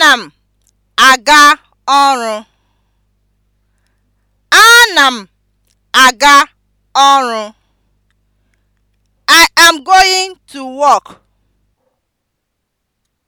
Ana m aga ọrụ. Ana m aga ọrụ. I am going to work.